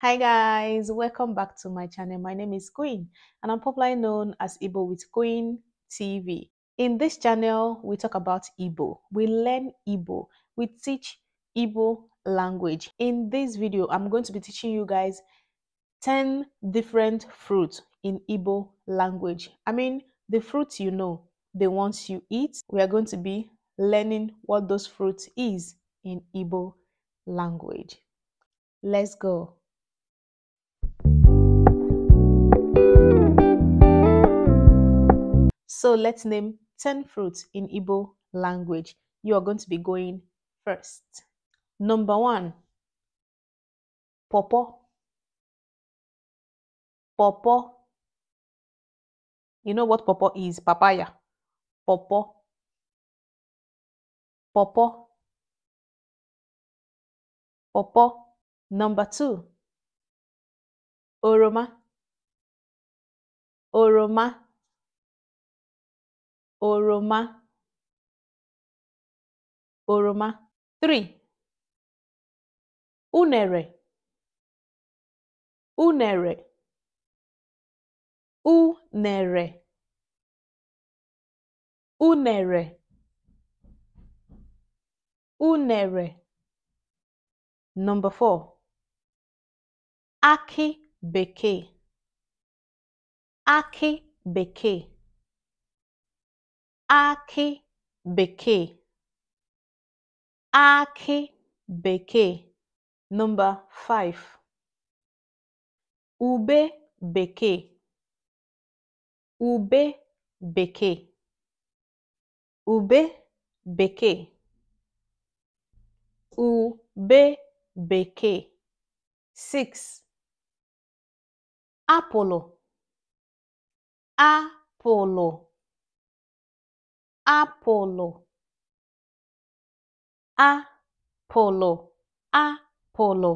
Hi guys, welcome back to my channel. My name is Queen and I'm popularly known as Igbo with Queen TV. In this channel, we talk about Igbo. We learn Igbo. We teach Igbo language. In this video, I'm going to be teaching you guys 10 different fruits in Igbo language. I mean, the fruits you know, the ones you eat. We are going to be learning what those fruits is in Igbo language. Let's go. So let's name 10 fruits in Igbo language. You are going to be going first. Number one, popo. Popo. You know what popo is? Papaya. Popo. Popo. Popo. Number two, oroma. Oroma. oroma oroma 3 unere unere unere unere unere number 4 akị bekee akị bekee akị bekee akị bekee (Number 5) ube bekee ube bekee ube bekee ube bekee 6. apụlụ apụlụ apụlụ apụlụ apụlụ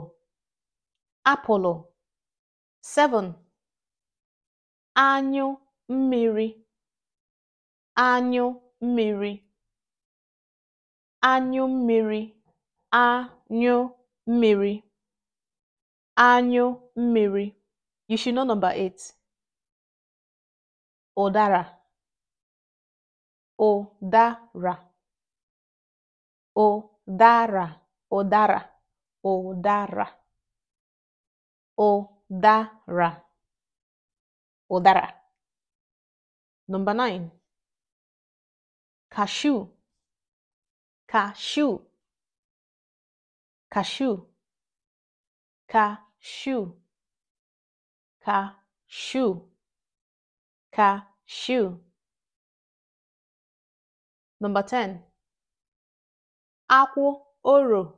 apụlụ 7 anyụ mmiri anyụ mmiri anyụ mmiri anyụ mmiri anyụ mmiri you should know number 8 ụdara Odara. Odara. Odara. Odara. Odara. Odara. Number nine. Cashew. Cashew. Cashew. Cashew. Cashew. Cashew. Number 10. Aku oro.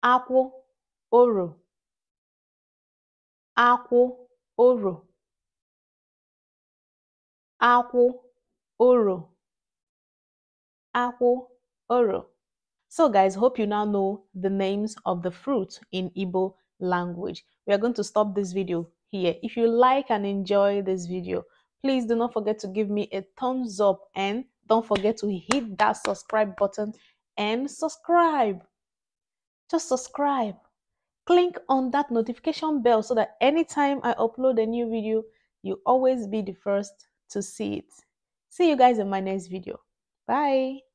Aku oro. Aku oro. Aku oro. Aku oro. So guys, hope you now know the names of the fruit in Igbo language. We are going to stop this video here. If you like and enjoy this video, please do not forget to give me a thumbs up and don't forget to hit that subscribe button and subscribe. Just subscribe. Click on that notification bell so that anytime I upload a new video, you always be the first to see it. See you guys in my next video. Bye.